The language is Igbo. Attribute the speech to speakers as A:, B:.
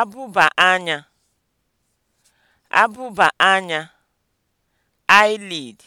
A: abụba anya abụba anya eyelid